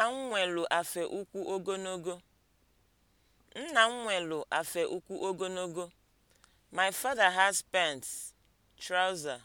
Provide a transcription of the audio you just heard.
Nna m nwelu afe ukwu ogologo. My father has pent (trouser).